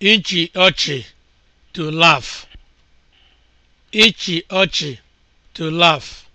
ịchị ọchị to laf. ịchị ọchị to laf.